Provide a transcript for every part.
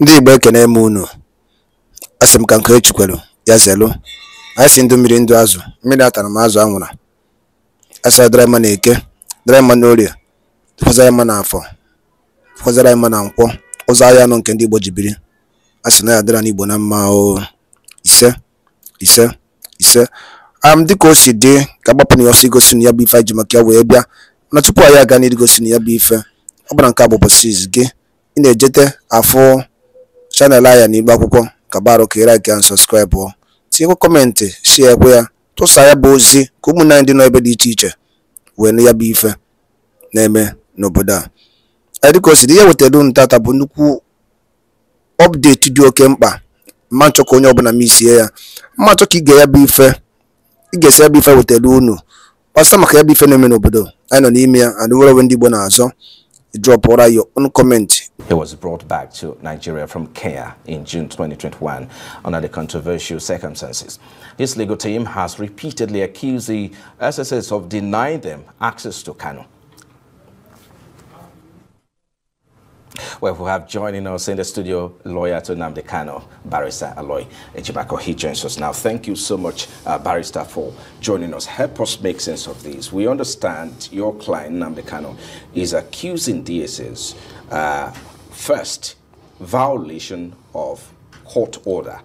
Ndị Igbo ekene m unu, asị m ka nke kwelu ya zelu anyị si ndụ mmiri ndụ azụ, mmiri atara m azụ anwụra, a sara dara mma n'eke, dara mma n'orie, tụkwasara mma n'afọ, tụkwasara mma na nkwọ, ụzọ ahịa nọ nke ndị Igbo ji biri, a na ya n'Igbo na mma o ise ise ise am dịka o si dị ka agbapụ na ya ọsọ igosi na ya bụ ife anyị ji maka ya wee bịa na tupu anyị aga gosi na ya bụ ife ọ bụla nke a bụ gị ị na-ejete afụ chanel anyị na Akwụkwọ ka barụka ị laikịa sọskraịbụ tinyekwa kọmentị shie ekwe ya tụsa ya bụ ozi ka ụmụnne dị n'ebe dị iche iche wee ya bụ ife na-eme n'obodo a dịka o dị ihe wetara unu tata bụ nnukwu ọpdeti dị oke mkpa mma nchọ ka onye ọbụla m isie ya mma nchọ ka ige ya bụ ife ị ya bụ ife wetara unu kpasa maka ya bụ ife na-eme n'obodo anyị nọ n'ime ya and nwere onwe ndị Igbo na-azọ ụra ya ọnụ kọmentị He was brought back to Nigeria from Kenya in June 2021 under the controversial circumstances. His legal team has repeatedly accused the SSS of denying them access to Kano. Well, we have joining us in the studio lawyer to Namde Kano, Barrister Aloy Ejibako. He joins us now. Thank you so much, uh, Barrister, for joining us. Help us make sense of this. We understand your client, Namde Kano, is accusing DSS uh, First, violation of court order.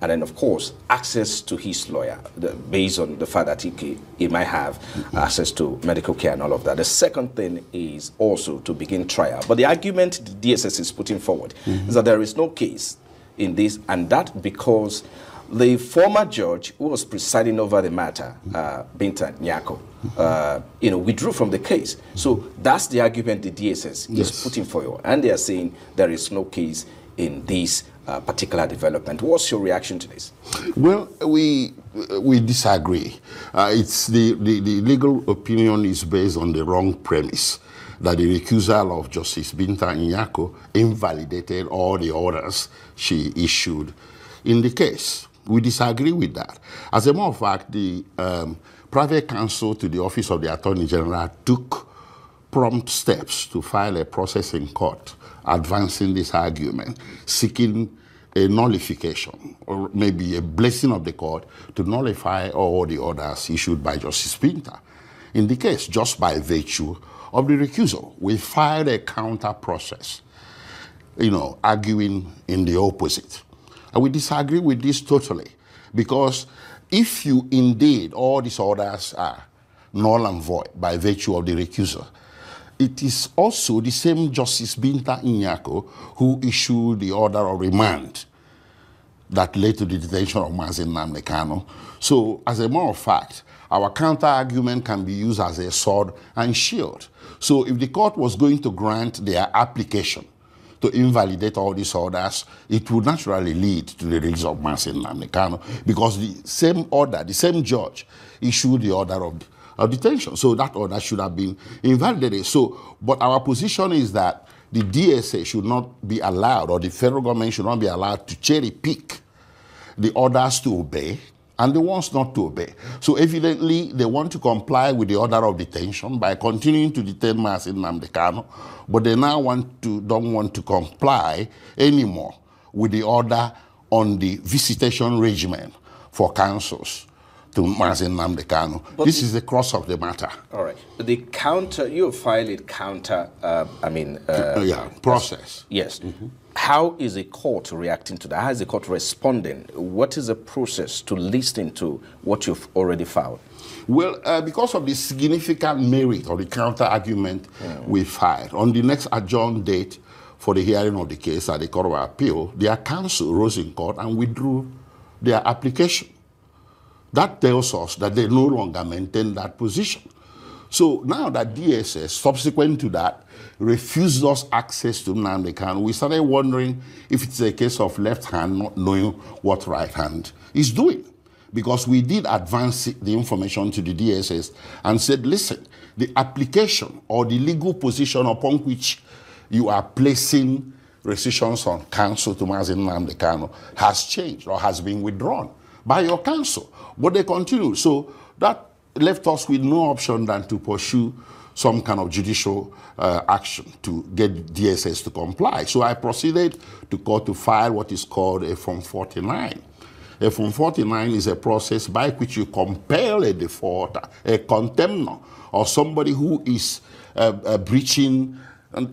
And then, of course, access to his lawyer the, based on the fact that he, he might have access to medical care and all of that. The second thing is also to begin trial. But the argument the DSS is putting forward mm -hmm. is that there is no case in this, and that because the former judge who was presiding over the matter, uh, Binta Nyako, uh, you know, withdrew from the case. So that's the argument the DSS yes. is putting forward. And they are saying there is no case in this uh, particular development. What's your reaction to this? Well, we we disagree. Uh, it's the, the, the, legal opinion is based on the wrong premise that the recusal of Justice Binta Nyako invalidated all the orders she issued in the case. We disagree with that. As a matter of fact, the um, private counsel to the Office of the Attorney General took prompt steps to file a process in court advancing this argument, seeking a nullification or maybe a blessing of the court to nullify all the orders issued by Justice Pinter. In the case, just by virtue of the recusal, we filed a counter process, you know, arguing in the opposite. And we disagree with this totally because if you indeed, all these orders are null and void by virtue of the recusal, it is also the same Justice Binta Inyako who issued the order of remand that led to the detention of Mazin Namdekano. So, as a matter of fact, our counter argument can be used as a sword and shield. So, if the court was going to grant their application, to invalidate all these orders, it would naturally lead to the release of Mansin Namdekano because the same order, the same judge issued the order of, of detention. So that order should have been invalidated. So, but our position is that the DSA should not be allowed or the federal government should not be allowed to cherry pick the orders to obey and the ones not to obey. So evidently, they want to comply with the order of detention by continuing to detain in Namdekano, but they now want to, don't want to comply anymore with the order on the visitation regimen for councils to This is the cross of the matter. All right. The counter, you filed it counter, uh, I mean... Uh, uh yeah, process. Yes. Mm -hmm. How is the court reacting to that? How is the court responding? What is the process to listen to what you've already filed? Well, uh, because of the significant merit or the counter argument mm. we filed, on the next adjourned date for the hearing of the case at the Court of Appeal, their counsel rose in court and withdrew their application. That tells us that they no longer maintain that position. So now that DSS, subsequent to that, refused us access to Namdekan, we started wondering if it's a case of left hand not knowing what right hand is doing. Because we did advance the information to the DSS and said, listen, the application or the legal position upon which you are placing restrictions on counsel to Mazin Nandekano has changed or has been withdrawn by your counsel. But they continue. So that left us with no option than to pursue some kind of judicial uh, action to get DSS to comply. So I proceeded to court to file what is called a Form 49. A Form 49 is a process by which you compel a defaulter, a contemnor, or somebody who is uh, uh, breaching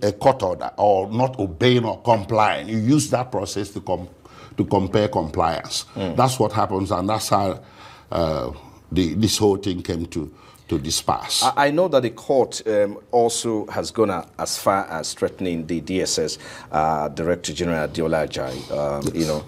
a court order or not obeying or complying. You use that process to compel to compare compliance. Mm. That's what happens, and that's how uh, the, this whole thing came to, to disperse. I, I know that the court um, also has gone as far as threatening the DSS uh, Director General Diola Um, yes. You know,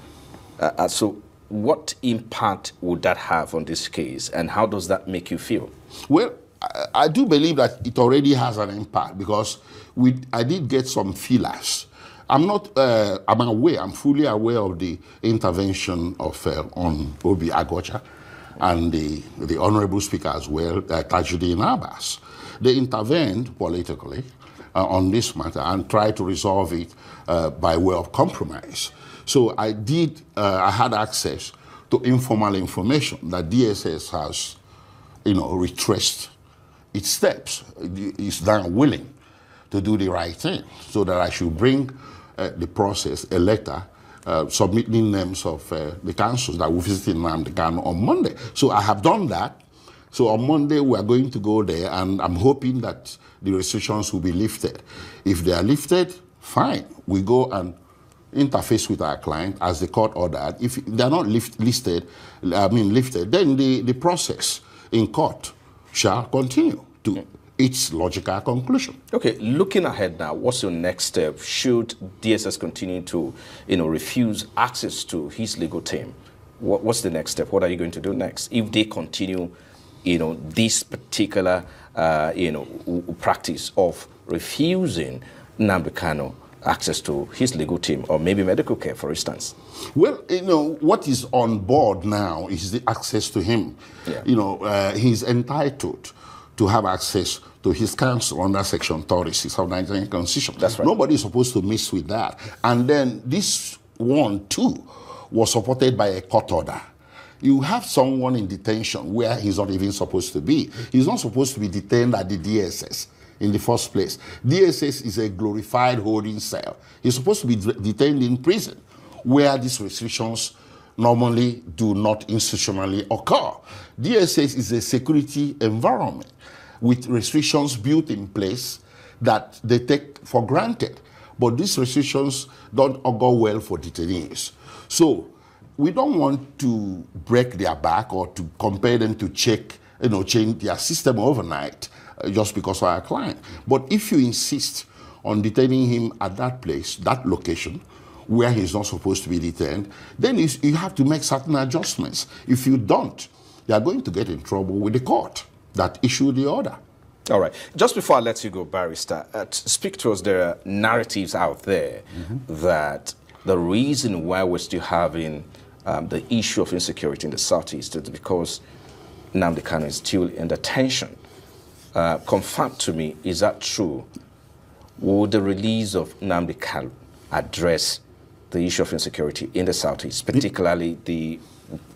uh, uh, so what impact would that have on this case, and how does that make you feel? Well, I, I do believe that it already has an impact because we, I did get some feelers I'm not, uh, I'm aware, I'm fully aware of the intervention of uh, on Obi Agocha and the, the Honorable Speaker as well, uh, Tajuddin Abbas. They intervened politically uh, on this matter and tried to resolve it uh, by way of compromise. So I did, uh, I had access to informal information that DSS has, you know, retraced its steps. It's now willing to do the right thing so that I should bring uh, the process a letter uh, submitting names of uh, the councils that will visit Nnamdi Ghana on Monday. So I have done that. So on Monday, we are going to go there, and I'm hoping that the restrictions will be lifted. If they are lifted, fine. We go and interface with our client as the court ordered. If they're not lift, listed, I mean lifted, then the, the process in court shall continue to its logical conclusion. Okay, looking ahead now, what's your next step? Should DSS continue to, you know, refuse access to his legal team? What, what's the next step? What are you going to do next if they continue, you know, this particular, uh, you know, practice of refusing Nambikano access to his legal team or maybe medical care, for instance? Well, you know, what is on board now is the access to him. Yeah. You know, uh, he's entitled to have access to his counsel under Section 36 of the Nigerian Constitution. That's right. Nobody is supposed to mess with that. And then this one, too, was supported by a court order. You have someone in detention where he's not even supposed to be. He's not supposed to be detained at the DSS in the first place. DSS is a glorified holding cell. He's supposed to be detained in prison where these restrictions normally do not institutionally occur. DSS is a security environment with restrictions built in place that they take for granted. But these restrictions don't go well for detainees. So we don't want to break their back or to compel them to check, you know, change their system overnight uh, just because of our client. But if you insist on detaining him at that place, that location, where he's not supposed to be detained, then you have to make certain adjustments. If you don't, they are going to get in trouble with the court that issued the order. All right. Just before I let you go, Barrister, uh, speak to us. There are narratives out there mm -hmm. that the reason why we're still having um, the issue of insecurity in the Southeast is because Namdi is still in detention. Uh, confirm to me, is that true? Will the release of Namdi address the issue of insecurity in the southeast, particularly the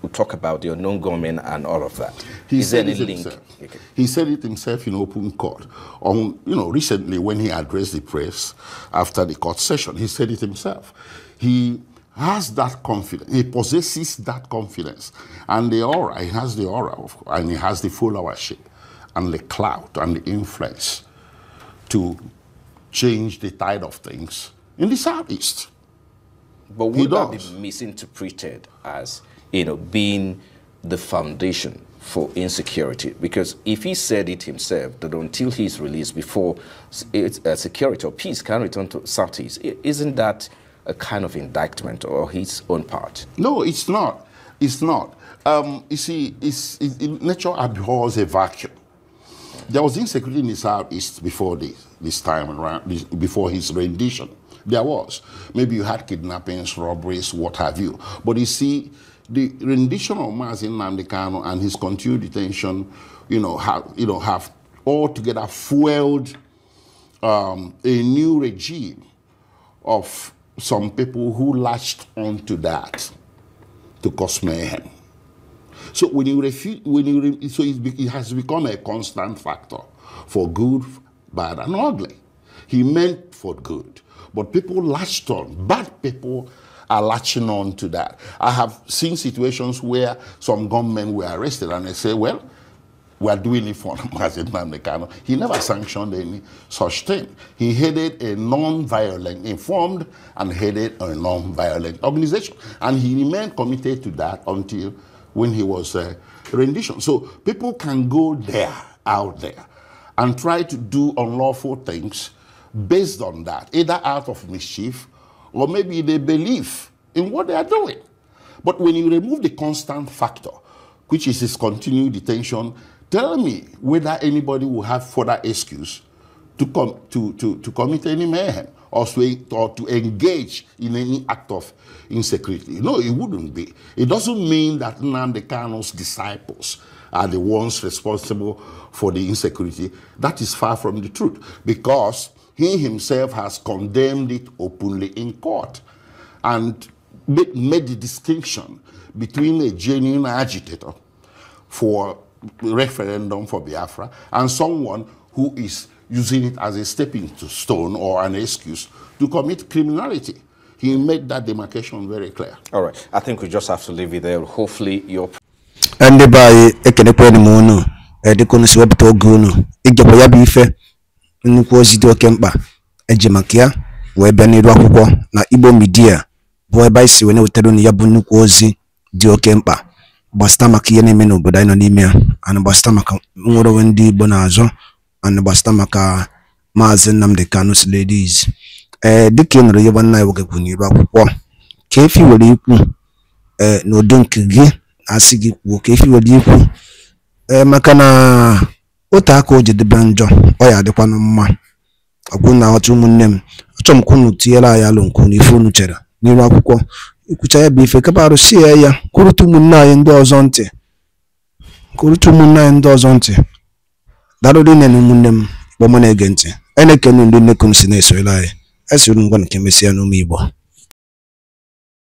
we talk about the unknown government and all of that. He Is said it link? Himself. Okay. He said it himself in open court. On you know, recently when he addressed the press after the court session, he said it himself. He has that confidence. He possesses that confidence, and the aura. He has the aura, of, and he has the followership, and the clout, and the influence to change the tide of things in the southeast. But would that be misinterpreted as, you know, being the foundation for insecurity? Because if he said it himself, that until he's released before uh, security or peace can return to Southeast, isn't that a kind of indictment or his own part? No, it's not. It's not. Um, you see, it's, it, nature abhors a vacuum. There was insecurity in the Southeast before this, this time around, this, before his rendition. There was. Maybe you had kidnappings, robberies, what have you. But you see, the rendition of Mazin Namdekano and his continued detention, you know, have, you know, have altogether fueled um, a new regime of some people who latched onto that to cause mayhem. So when you refuse, when you so it, has become a constant factor for good, bad, and ugly. He meant for good. But people latched on. Bad people are latching on to that. I have seen situations where some gunmen were arrested and they say, well, we are doing it for Mazin Namdekano. He never sanctioned any such thing. He headed a non-violent, informed and headed a non-violent organization. And he remained committed to that until when he was uh, rendition. So people can go there, out there, and try to do unlawful things based on that, either out of mischief or maybe they believe in what they are doing. But when you remove the constant factor, which is his continued detention, tell me whether anybody will have further excuse to, com- to, to, to commit any mayhem or to, or to engage in any act of insecurity. No, it wouldn't be. It doesn't mean that Nnamdi disciples are the ones responsible for the insecurity. That is far from the truth because he himself has condemned it openly in court and made the distinction between a genuine agitator for referendum for Biafra and someone who is using it as a stepping stone or an excuse to commit criminality. He made that demarcation very clear. All right. I think we just have to leave it there. Hopefully, your. And by a a deconus web to a nnukwu ozi dị oke mkpa eji maka ya wee bịa n'iru akwụkwọ na Igbo midia bụ ebe anyị si wee na-wetara unu ya bụ nnukwu ozi dị oke mkpa gbasịta maka ihe na-eme n'obodo anyị nọ n'ime ya ana gbasịta maka nwere onwe ndị Igbo na-azọ ana gbasịta maka Maazị Nnamdi Kano Sirleadys ee eh, dịka ị nụrụ ya nna ya nwoke kwuru n'iru akwụkwọ ka efi were ikwu ee eh, n'ụdị nke gị asị gị kwuo ka efi were ikwu ee eh, maka na ote aka o jedebe njọ ọ ya adịkwanụ mma ọkwụna ọtụ ụmụnne m achọ m ka unu tinyere anyị alụ nke n'ife ife unu chere n'iru akwụkwọ ikwucha ya bụ ife kapa arụsị ya ya kwurute ụmụnne anyị ndị ọzọ ntị kwurute ụmụnne anyị ndị ọzọ ntị darụrụ nne na ụmụnne m kpọmụ na-ege ntị anyị na-ekene ndị nnekunu si na-esoyere anyị esiri ngwa nke mesịa n'ụmụ igbo